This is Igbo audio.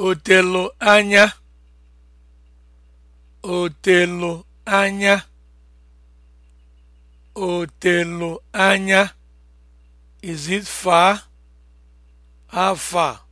O anya, o anya, o anya. Is it far? How far?